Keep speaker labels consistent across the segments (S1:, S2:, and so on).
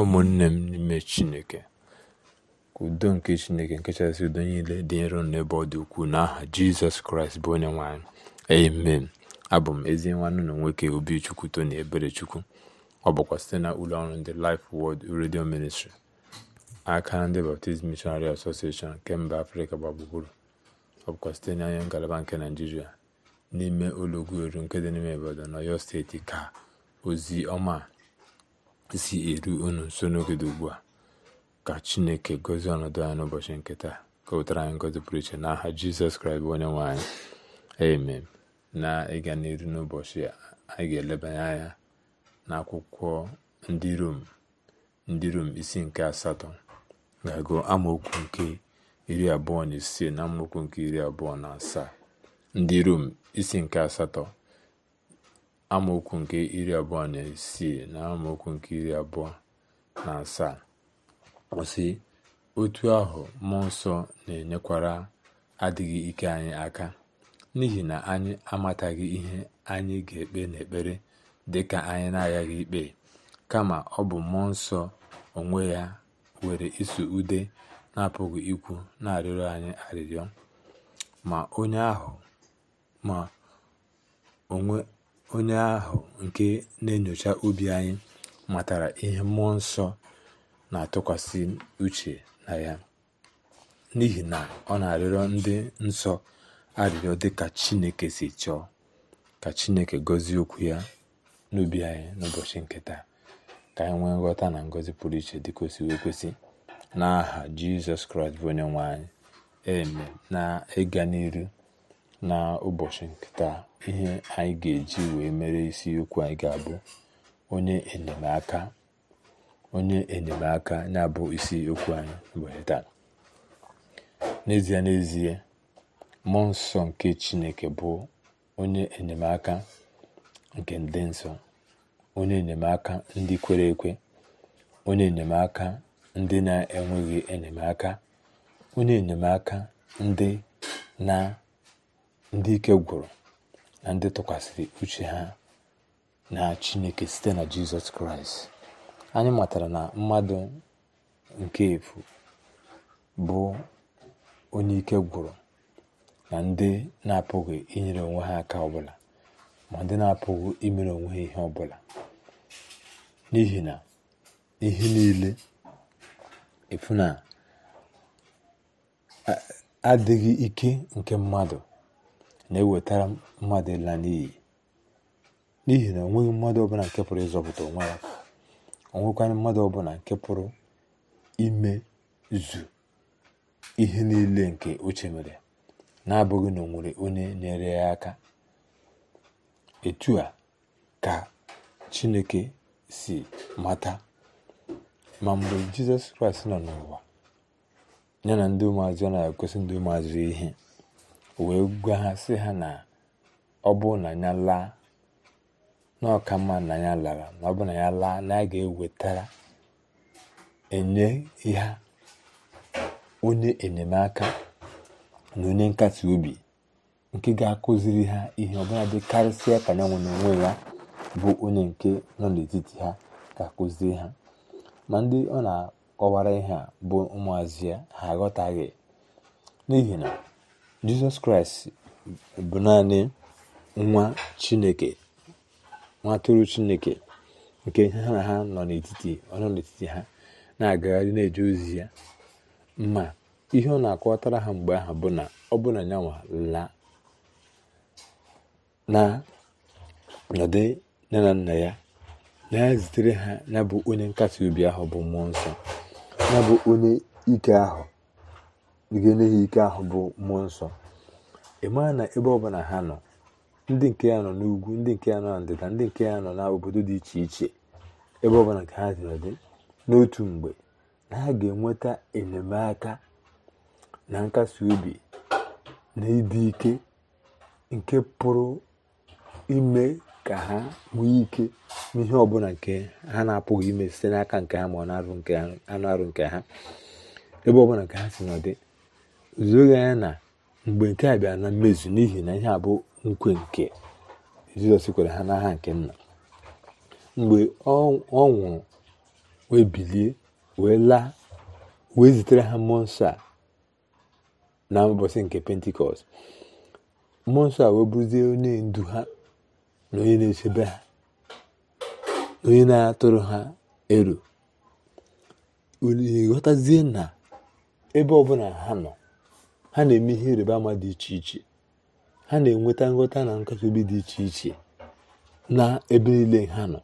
S1: ụmụnne m n'ime chineke ka udo nke chineke nke chasị udo niile dị nro n'ebe ọ dị ukwuu n'aha jizọs kraịst bụ onye nwanyị amen abụ m ezi nwanne na nwoke obichukwu tony ebere ọ bụkwa site na ụlọ ọrụ ndị life wod redio ministri aka ndị baptizim mishonari asosieshọn nke mba afrịka gbagburu ọ bụkwa site n'anya ngalaba nke naijiria n'ime ụlọ eru nke dị n'ime obodo na steeti ka ozi ọma isi eru unu nso n'ogede ugbu a ka chineke gozie ọnọdụ anyị n'ụbọchị nke taa ka ụtara anyị ngọzi pụrụ iche n'aha jizọs kraịst bụ onye nwanyị anyị amen na ịga n'iru n'ụbọchị anyị ga-elebanye anya n'akwụkwọ ndị rom ndị rom isi nke asatọ ga-agụ amaokwu nke iri abụọ na ise na amaokwu nke iri abụọ na asaa ndị rom isi nke asatọ amaokwu nke iri abụọ na isii na amaokwu nke iri abụọ na asaa kwụsị otu ahụ mmụọ nsọ na-enyekwara adịghị ike anyị aka n'ihi na anyị amataghị ihe anyị ga-ekpe n'ekpere dị ka anyị na-aghaghị ikpe kama ọ bụ mmụọ nsọ onwe ya were iso ude na-apụghị ikwu na-arịọrọ anyị arịrịọ ma onye ahụ ma onwe onye ahụ nke na-enyocha obi anyị matara ihe mmụọ nsọ na-atụkwasị uche na ya n'ihi na ọ na-arịọrọ ndị nsọ arịrịọ dị ka chineke si chọọ ka chineke gọzie okwu ya n'ubi anyị n'ụbọchị nke ka anyị nwee nghọta na ngọzi pụrụ iche dị ka wee siwe n'aha jizọs kraịst bụ eme na ịga n'iru na ụbọchị nke ihe anyị ga-eji wee mere isiokwu anyị ga-abụ onye enyemaka onye enyemaka na-abụ isi okwu anyị wee taa n'ezie n'ezie mmụọ nsọ nke chineke bụ onye enyemaka nke ndị nsọ onye enyemaka ndị kwere ekwe onye enyemaka ndị na-enweghị enyemaka onye enyemaka ndị na ndị ike gwụrụ na ndị tụkwasịrị uche ha na chineke site na jizọs kraịst anyị matara na mmadụ nke efu bụ onye ike gwụrụ na ndị na-apụghị inyere onwe ha aka ọbụla ma ndị na-apụghị imere onwe ha ihe ọbụla n'ihi na ihe niile efu na adịghị ike nke mmadụ na-ewetara mmadụ ịla n'iyi n'ihi na onweghị mmadụ ọbụla nke pụrụ ịzọpụta onwe ya onwekwana mmadụ ọbụla nke pụrụ ime zu ihe niile nke ochie mere na-abụghị na o onye nyere ya aka etu a ka chineke si mata ma mgbe jizọs kraịst nọ n'ụwa ya na ndị ụmụazụ ya na-egosi ndị ụmụazụ ihe o wee gwa ha sị ha na ọ bụ na ya laa mma na ya lara na ọ bụ na ya laa na ya ga-ewetara enye ha onye enyemaka na onye nkasi obi nke ga-akụziri ha ihe ọbụla dị karịsịa ka nyanwụ na onwe ya bụ onye nke nọ n'etiti ha ga-akụziri ha ma ndị ọ na-akọwara ihe a bụ ụmụazị ya ha aghọtaghị n'ihi na jizọs kraịst bụ naanị nwa chineke nwa atụrụ chineke nke ha na ha nọ n'etiti ọ nọ n'etiti ha na-agagharị na-eje ozi ya ma ihe ọ na-akọwatara ha mgbe ahụ bụ na ọ bụ na nyanwa laa na nne na nna ya na ya zitere ha ya bụ onye nkasi obi ahụ bụ mmụọ nsọ ya bụ onye ike ahụ ike ahụ bụ mmụọ nsọ ị na ebe ọbụla ha nọ ndị nke ya nọ n'ugwu ndị nke ya nọ na ndịda ndị nke ya nọ n'obodo dị iche iche ebe ọbụla nke ha dị n'otu mgbe na ha ga-enweta enyemaka na nkasi obi na ịdị ike nke pụrụ ime ka ha nwee ike n'ihe ọbụla nke ha na-apụghị ime site n'aka nke ha ma ọ na-arụ nke ha ebe ọbụla nke ha si nọdị zuoghị anya na mgbe nke a bịara na mmezu n'ihi na ihe a bụ nkwe nke jizọs kwere ha n'aha nke nna mgbe ọ nwụrụ wee bilie wee laa wee zitere ha mmụọ nsọ a na ụbọchị nke pentikọst mmụọ nsọ a wee bụrụzie onye ndu ha na onye na-echebe ha onye na-atụrụ ha ero ghọtazie na ebe ọbụla ha nọ ha na-eme ihe ịrịba ama dị iche iche ha na-enweta nghọta na nkakọbi dị iche iche na ebe niile ha nọ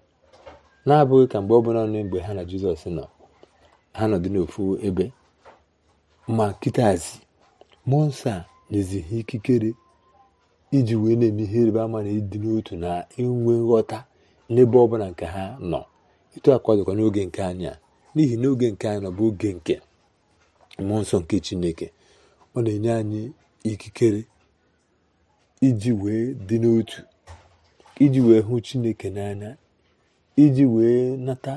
S1: na-abụghị ka mgbe ọ bụla nọ mgbe ha na jizọs nọ ha nọdụ n'ofu ebe ma kịtazi mmụọ nsọ a nyezi ha ikikere iji wee na-eme ihe ịrịba ama na ịdị n'otu na inwe nghọta n'ebe ọ bụla nke ha nọ ịtụ akwadokwa n'oge nke anya n'ihi n'oge nke anya nọ bụ oge nke mmụọ nsọ nke chineke ọ na-enye anyị ikikere iji wee dị n'otu iji wee hụ chineke n'anya iji wee nata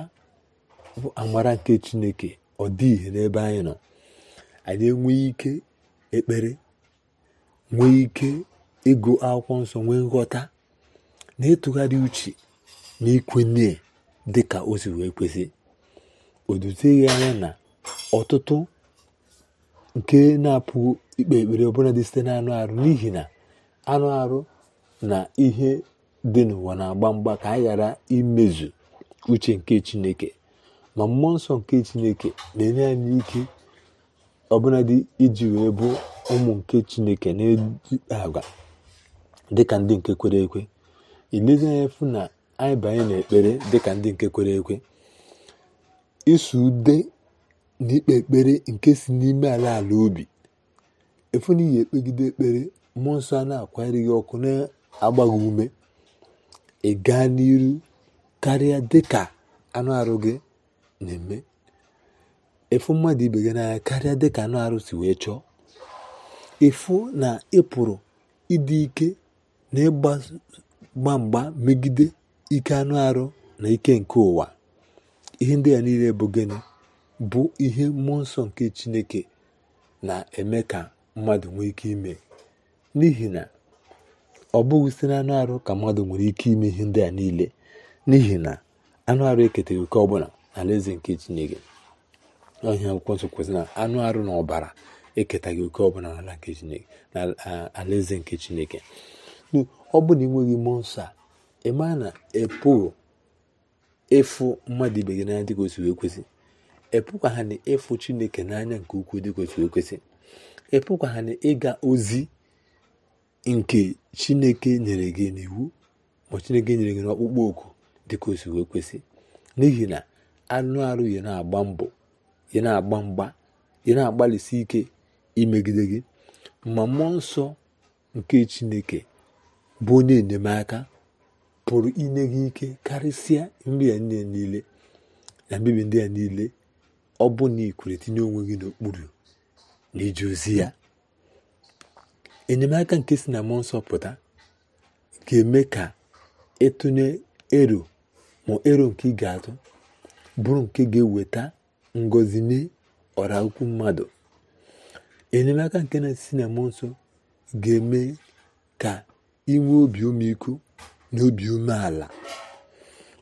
S1: amara nke chineke ọ dị ihe n'ebe anyị nọ anyị enweghị ike ekpere nwee ike ịgụ akwụkwọ nsọ nwee nghọta na ịtụgharị uche na ikwenye dị ka o si wee kwesị o duteghị anya na ọtụtụ nke na apụ ikpe ekpere ọbụla dị site n'anụ arụ n'ihi na anụ arụ na ihe dị n'ụwa na-agba mgba ka anyị ghara imezu uche nke chineke ma mmụọ nsọ nke chineke na-enye anyị ike dị iji wee bụ ụmụ nke chineke na-eji agwa dịka ndị nke kwere ekwe ilezi anya fụ na anyị banye n'ekpere dịka ndị nke kwere ekwe isu ude na ikpe ekpere nke si n'ime ala ala obi efu na iyi ekpegide ekpere mmụọ nsọ a na-akwanyere gị ọkụ na-agbaghị ume ị gaa n'iru karịa dịka anụ arụ gị na-eme efu mmadụ ibe gị n'anya karịa dịka anụ arụ si wee chọọ efu na ịpụrụ ịdị ike na ịgba mgba megide ike anụ arụ na ike nke ụwa ihe ndị a niile bụ gịnị bụ ihe mmụọ nsọ nke chineke na-eme ka mmadụ nwee ike ime n'ihi na ọ bụghị site na anụ arụ ka mmadụ nwere ike ime ihe ndị a niile n'ihi na anụ arụ eketaghị oke ọbụla n'alaeze nke chineke ọhịa akwụkwọ nsọ kwesịrị na anụ arụ na ọbara eketaghị oke ọbụla n'ala nke chineke n'ala alaeze nke chineke ọ bụ na ị nweghị mmụọ nsọ a eme a na epụghị ịfụ mmadụ ibe gị n'anya dị ka wee kwesị epụkwa ha na ịfụ chineke n'anya nke ukwuu dị kwesị ekwesị epụkwa ha na ịga ozi nke chineke nyere gị n'iwu ma chineke nyere gị n'ọkpụkpọ oku dị ka ekwesị n'ihi na anụ arụ ya na-agba mbọ ya na-agba mgba ya na-agbalịsi ike imegide gị ma mmụọ nsọ nke chineke bụ onye enyemaka pụrụ inye gị ike karịsịa nri ya niile na mbibi ndị ya niile ọ bụ na ikwere tinye onwe gị n'okpuru na iji ozi ya enyemaka nke si na mmụọ nsọ ga-eme ka ịtụnye ero ma ero nke ị ga-atụ bụrụ nke ga-eweta ngozi nye ọra mmadụ enyemaka nke na-esi na mmụọ nsọ ga-eme ka inwe obi ọmịiko na obi umeala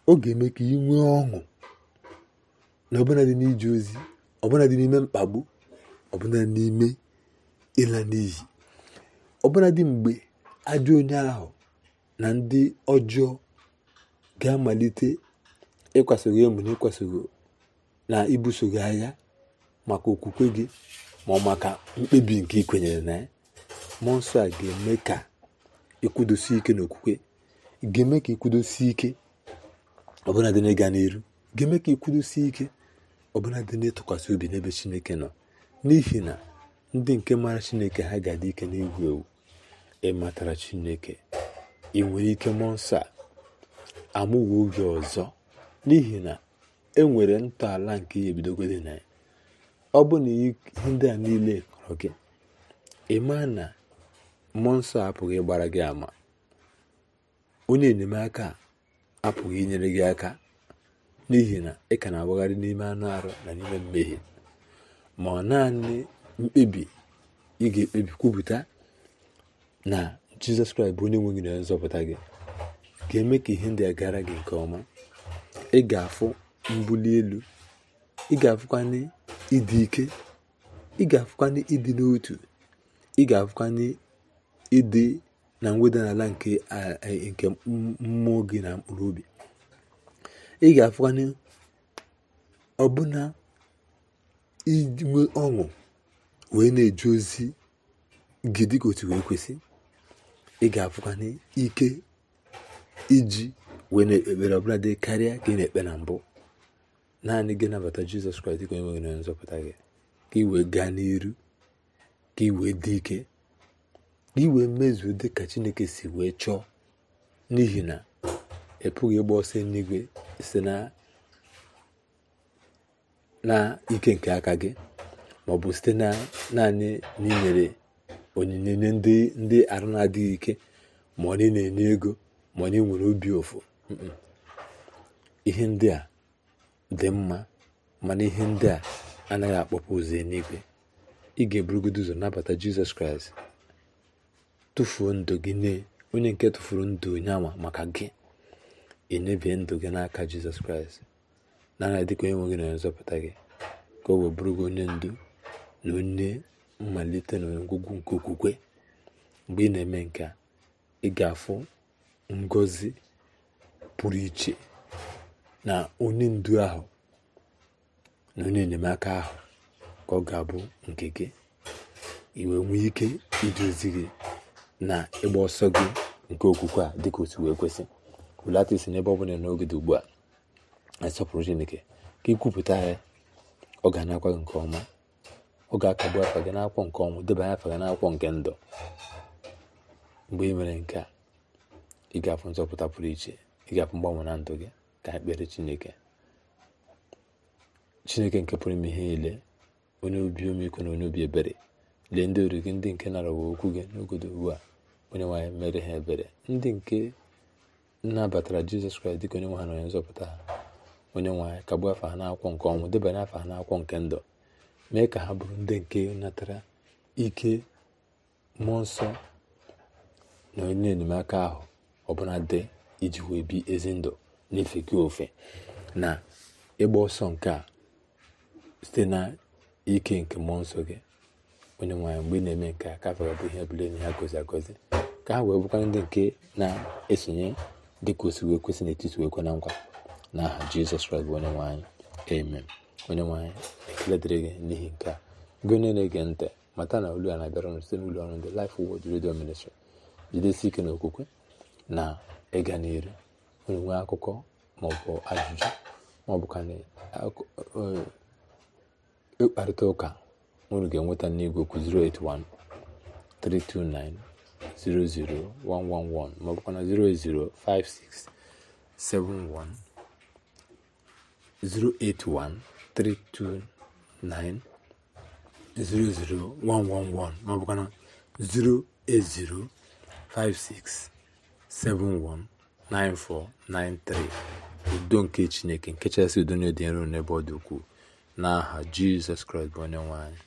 S1: ọ ga-eme ka ị nwee ọṅụ na ọbụladị n'ije ozi ọbụladị n'ime mkpagbu ọbụla n'ime ịla n'iyi dị mgbe ajọ onye ahụ na ndị ọjọọ ga-amalite ịkwasogị emu na ịkwasogị na ibuso gị agha maka okwukwe gị ma maka mkpebi nke ị kwenyere na ya mmụọ nsọ a ga-eme ka ịkwụdosie ike n'okwukwe ga-eme ka ịkwụdosie ike ọbụladị n'ịga n'iru ga-eme ka ịkwụdosie ike ọbụla dị n'ịtụkwasị obi n'ebe chineke nọ n'ihi na ndị nke maara chineke ha ga-adị ike n'egwu ewu ịmatara chineke ị nwere ike mmụọ nsọ a oge ọzọ n'ihi na e nwere ntọala nke ihe ebidogode na ya ọ bụ na ihe ndị a niile kọrọ gị ịmaa na mmụọ nsọ apụghị ịgbara gị ama onye enyemaka apụghị inyere gị aka n'ihi na ị ka na-awagharị n'ime anụ arụ na n'ime mmehie ma ọ naanị mkpebi ị ga-ekpebi kwupụta na jizọs kraịst bụ onye nwe gị na nzọpụta gị ga-eme ka ihe ndị a gara gị nke ọma ị ga-afụ mbuli elu ị ga-afụkwanye ịdị ike ị ga-afụkwanye ịdị n'otu ị ga-afụkwanye ịdị na mweda n'ala nke mmụọ gị na mkpụrụ obi ị ga-afụkwanụ ọbụna inwe ọṅụ wee na-eje ozi gị dịka otu wee kwesị ị ga-afụkwanụ ike iji wee na-ekpere ọbụla dị karịa ka ị na-ekpe na mbụ naanị gị nabata jizọs kraịst ka onye nwere nzọpụta gị ka ị wee gaa n'iru ka ị wee dị ike ka ị wee mezuo dị ka chineke si wee chọọ n'ihi na ị pụghị ịgba ọsọ n'igwe site na ike nke aka gị ma ọ bụ site na naanị n'inyere onyinye nye ndị ndị arụ na-adịghị ike ma ọ na-enye ego ma onye nwere obi ụfụ ihe ndị a dị mma mana ihe ndị a anaghị akpọpụ ụzọ eluigwe ị ga-eburugodo ụzọ nabata jizọs kraịst tụfuo ndụ gị nye onye nke tụfuru ndụ onye ama maka gị enyebie ndụ gị n'aka jizọs kraịst nara dịka onye nwe na onye nzọpụta gị ka ọ wee bụrụ gị onye ndu na onye mmalite na ngwugwu nke okwukwe mgbe ị na-eme nke a ị ga-afụ ngozi pụrụ iche na onye ndu ahụ na onye enyemaka ahụ ka ọ ga-abụ nke gị iwe nwee ike iduzi gị na ịgba ọsọ gị nke okwukwe a dịka otu wee kwesị hulata isi n'ebe ọ bụla n'oge dị ugbu a na-asọpụrụ chineke ka ikwupụta ya ọ ga na gị nke ọma ọ ga-akagbu afa gị n'akwụkwọ nke ọnwụ debanye afa gị nakwọ nke ndụ mgbe ị mere nke a ị ga-afụ nzọpụta pụrụ iche ị ga-afụ mgbanwe na ndụ gị ka ekpere chineke chineke nke pụrụ ime ihe niile onye obi omiko na onye obi ebere lee ndị ori gị ndị nke nara okwu gị n'ogodo ugbu a onye nwaanyị mere ha ebere ndị nke nabatara jizọs kraịst dịka onye nwe ha na onye nzọpụta ha onye nwe anyị kagbuo afọ ha n'akwụkwọ nke ọnwụ debanye afọ ha n'akwụkwọ nke ndụ mee ka ha bụrụ ndị nke natara ike mmụọ nsọ na onye enyemaka ahụ ọbụla dị iji wee bi ezi ndụ n'ife gị ofe na ịgba ọsọ nke a site na ike nke mmụọ nsọ gị onye nwaanyị mgbe ị na-eme nke a ka afọ ga bụ ihe bụla enyi ha gozi agozi ka ha wee bụkwara ndị nke na-esonye dị ka osiwe kwesị n'etiti wee kwe na nkwa na aha jizọs kraịst bụ onye nwanyị amen onye nwanyị ekele dịrị gị n'ihi nke a gị onye na-ege ntị mata na olu a na-abịara ọnụ site n'ụlọ ọrụ ndị Life Word Radio Ministry jidesi ike na okwukwe na ịga n'iru unu nwee akụkọ maọbụ ajụjụ maọbụ ka e, ịkparịta ụka unu ga-enweta n'igwe okwu 081 329 00111 maọbụkwa na 0805671 081329 00111 maọbụkwa na udo nke chineke nke chasị udo na dị nro n'ebe ọ dị n'aha jizọs kraịst bụ onye nwanyị.